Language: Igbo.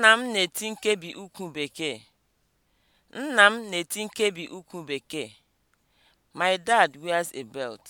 Nna m na-eti nkebi ukwu bekee. Nna m na-eti nkebi ukwu bekee. My dad wears a belt.